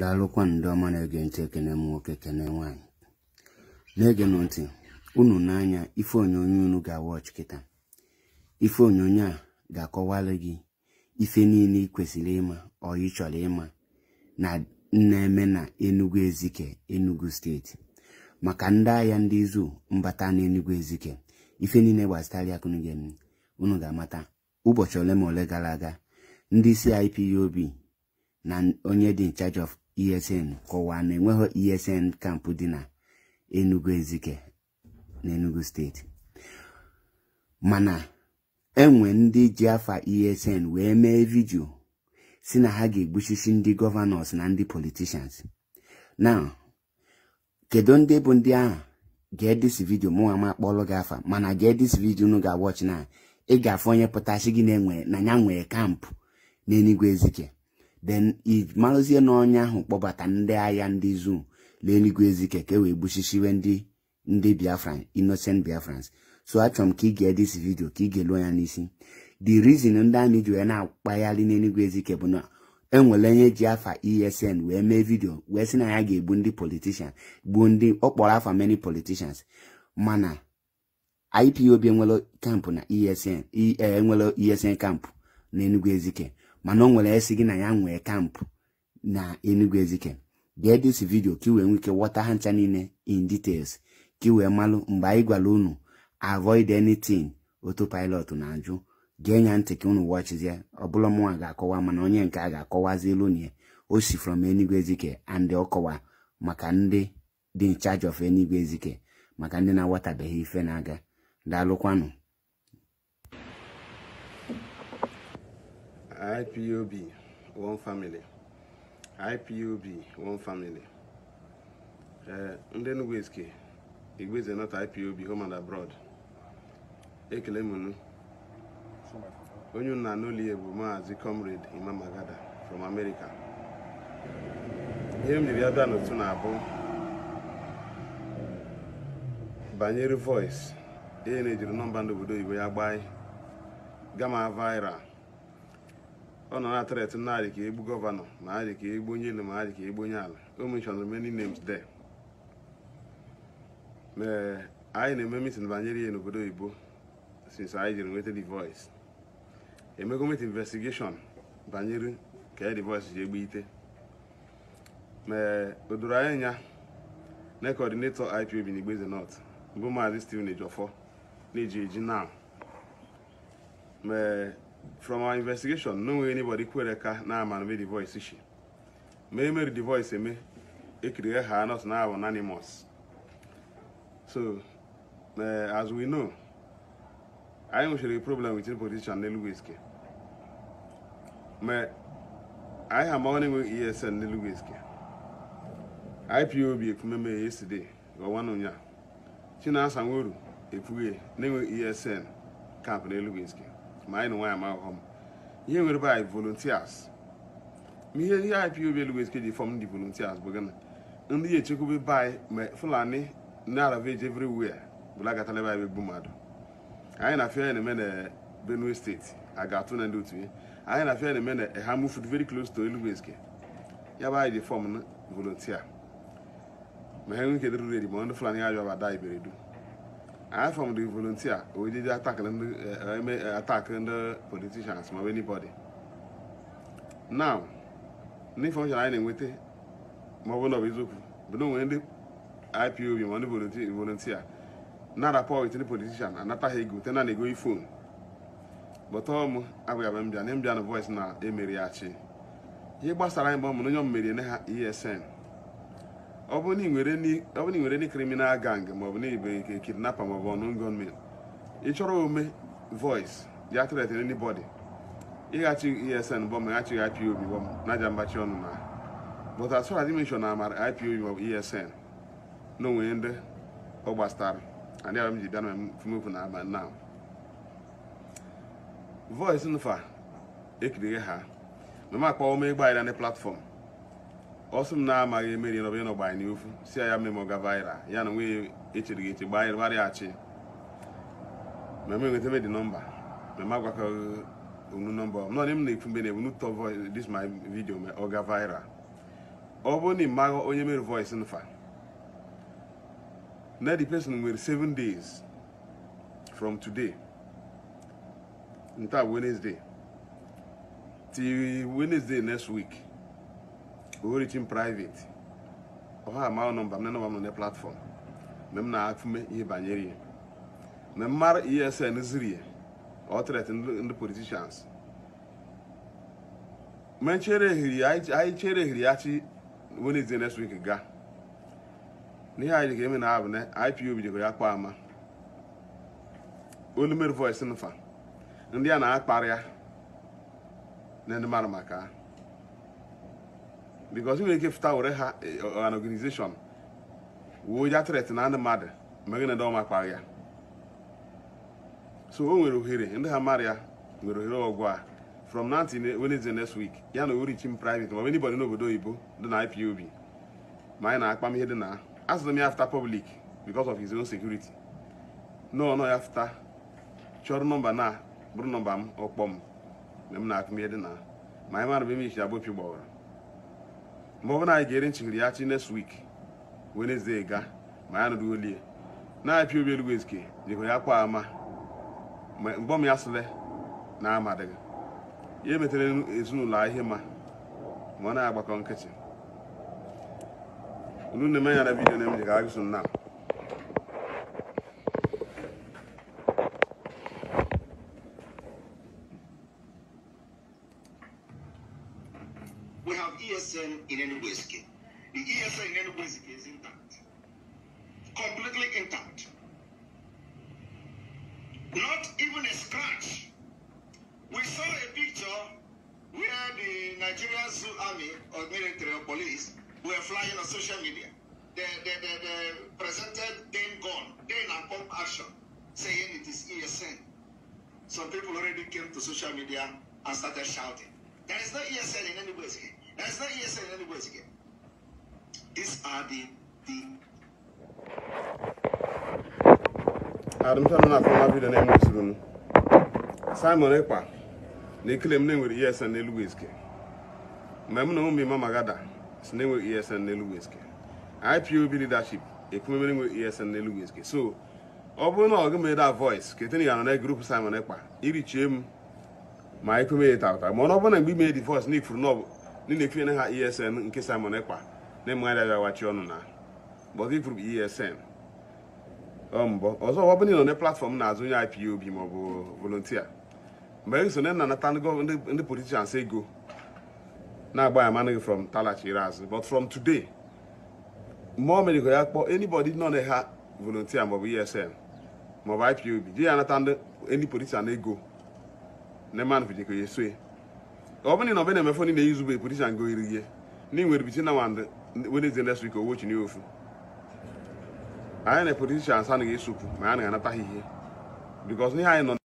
daalụkwa ndị ọma na-ege ntị ekene m nwoke kene nwaanyị na-egenụ ntị unu n'anya ife onyonyo unu ga-awọchị kịta ife onyonyo a ga-akọwalụ gị ife niile ị kwesịrị ịma ọ ị chọrọ ịma na na-eme na Enugu Ezike Enugu steeti maka ndị ahịa ndị izu mbata na Enugu Ezike ife niile gbasịtara ya kunu gem unu ga-amata ụbọchị ole ma ole gara aga ndị isi IPOB e na onye dị in charge of esn kọwaa na enweghị esn kampụ dị na enugu ezike na enugu steeti mana enwe ndị ji afa esn wee mee vidio si na ha ga-egbuchisi ndị gọvanọs na ndị politishans na kedu ndị bụ ndị ahụ gee vidio mụ ama akpọrọ gị afa mana ga-edisi vidio ga awachi na ị ga onye pụtasị gị na enwe na ya nwee kampụ na Enugu ezike then imalụzie n'ọnya ahụ kpọbata ndị agha ndị zum leeluigwe ezike ka e wee gbusisiwe ndị ndị biafra inocent biafrans so achọrọ m ka ị gee dis vidio ka ị ga-eluo ya n'isi the reason ndị amị ji wee na-akpagharị n'eluigwe ezike bụ na enwere onye ji afa esn wee mee vidio wee sị na ya ga-egbu ndị politishan gbuo ndị ọkpọrọ afa many politicians mana ipob enwere kampụ na esn e, e, enwere esn kampụ na enugwu ezike mana ọ nwere esi gị na ya nwee kampụ na Enugu Ezike gee dis vidio ka ị wee nwee ike ghọta ha ncha niile in details ka ị wee malụ mgbe anyị gwara unu avoid anything autopilot na-ajụ gee nya ntị ka unu wọchizie ọbụla mụnwa ga-akọwa mana onye nke a ga-akọwazi elu na ya o si from Ezike and ọkọwa maka ndị dị in charge of Enugu Ezike maka ndị na-aghọtabeghị ife na-aga daalụkwanụ ipob one family ipob one family eh, ndị Enugu-Ezike Igweze North ipob home and abroad ekele m onye nna n'ụlọ ya bụ maazị comrade Imam magada from America ihe m ji bịa bịa n'otu na-abụ banyere voice e na-ejiri nọmba ndị obodo oyibo ya gbaa gama viral ọ nọ na threat na adị ka egbu gọvanọ ma adị ka egbu onye elu ma adị ka egbu onye ala o mentioned many names there ee anyị na-eme meeting banyere ya n'obodo oyibo since anyị jiri nweta the voice emego met investigation banyere ka e the voice ji egbe ite mee o doro anyị anya na coordinator IPOB na Igbeze North bụ maazị Stephen Ejiofor na-eji eji na mee from our investigation no nwere anybody kwere ka na voice devoice eh, me mere di voice eme kiri ha not na anonymous so uh, as we know anyị nwechara problem with politician n'Eluguizike ma anyị ha amaghị enweghị esn n'Eluguizike ipob ekwumeme yesterday ọnwana ụnya Chinasa Nworu ekwughị eh, e na-enweghị esn kamp n'Eluguizike ma anyị na nwaanyị ma ahụhọ m ihe nwere be anyị volunteers ma ihe ihe IPOB Oluwezike ji fọm ndị volunteers bụ gịnị ndị ya echekwube be anyị ma Fulani na-aravage everywhere bụlagatala ebe anyị bụ mmadụ anyị na fia na-eme na Benue steeti a ga-atụ na ndị otu ya anyị na eh, fia na-eme na ha moved very close to Oluwezike ya bụ anyị ji fọm na volunteer ma ha enwe ike dịrị redi ma ndị Fulani ya jụ aba da iberedu i from the volunteer we did attack uh, ndị uh, attack ma uh, politicians ma anybody now n'information na-enweta ma ọ bụrụ na ọ bụ eziokwu bụ na ndị ipob ma ndị volunteer na-arapọ with ndị politician anataghị ego te na na-ego ifon bọtọ m abụghị abịa mbịa na mbịa na voice emeri ya ihe gbasara anyị bụ na onye m merie ọ bụ na ị nwere ndị kriminal gang maọbụ na ibe ike kidnapa maọbụ ọnụ gunmen ị chọrọ ome voice ya threat n'ibodi ịghachi esn bọm ghachighị ipob bọm na aja mgbachi ọnụ na but as far as dimension na amara ipob maọbụ esn na onwe ndị ọ gbasara adị abịa m ji bịa na fumefu na aba na voice nfa ekirighe ha mama akpọọ m ịgba anyị na platfọm ọ sị m na-amaghị emeri nọba ịnọ gbanye n'ifu si ya memo gavaira ya na nwunye echere gị eche gbanyere gbarịghachi meme nweta medi nọmba meme agwakọghị onu nọmba m nọdị m na-ekwu mgbe na-ebu tọ voice this my video ma ọ ga viral ọ bụrụ na ị maghị onye mere voice nfa na the person nwere 7 days from today nta Wednesday till Wednesday next week origin private ọha ma nọmba m na nọmba m nọ na platform m na-afụme ihe banyere ihe mgbe mara esn ọ ndị politicians mgbe chere ehiri ya chi Wednesday next gaa n'ihe anyị eme na abụ na IPOB ya kpa ama nfa ndị a na-akparịa na ndị mara maka ha because we ike fụta were ha eh, an organization wuo ya tret na ndị mmadụ megide ọma ọmakpa ya so o nwere ohere ndị ha mara ya nwere ohere ọgụ a from now till Wednesday next week ya na orichim private but ọ bụ anybody n'obodo oyibo dị na IPOB ma anyị na akpam ihe dị na asụrụ m ya fita public because of his own security no ya afta chọrọ nọmba na bụrụ nọmba m ọkpọ m na na ma anyị mara bụ eme mgbe ọ bụrụ na anyị ga-ere nchighiri ya chi next week Wednesday ga ma ya nụrụ olie na-apịa obi elugwu ezike nyego ya kwa ama mgbe mgbọm ya sịrị na amadịghị ya emetere ezinụlọ ihe ma ma ọ na-agbakọ nkịtị unu na-eme ya na vidiyo na ka agụsụ nna m ESN in Enugueski. The ESN in Enugueski is intact. Completely intact. Not even a scratch. We saw a picture where the Nigerian Zoo Army or military or police were flying on social media. They, they, they, they presented then gone, then and pump action, saying it is ESN. Some people already came to social media and started shouting. There is no ESN in any way. That's not hearsay in any words again. These are the the na from vidio na enwesiri m simon ekpa na m with esn n'elu wizkid na si na esn n'elu ipob leadership ekwumemere enwere esn n'elu so na ya na grupu simon ekpa eh, ma ndị na ha e esn nke Simon Ekpa na-emegharị awachi ọnụ na bụrụ esn mbọ ọzọ ọ bụrụ na ị nọ na platfọm na-azụ onye IPOB ma ọ bụ volontia mgbe e sone na nata ndị politicians ego na-agba ya manụ from from talachiri azụ but from today mgbe o mere ya kpọọ anybody nọ na ha ma ọ bụ esn ma ọ maọbụ IPOB ji ya nata ndị politician ego na manụ vijigo ya esoe. ọ bụrụ na ọbụna emefe ndị na-eyi zube politishan go iri ihe ndị nwere bitin na wand Wednesday next week owo chi n'ofu anyị na politishan sa anaghị esopụ ma anyị anaghị anata ha ihe because ihe anyị nọ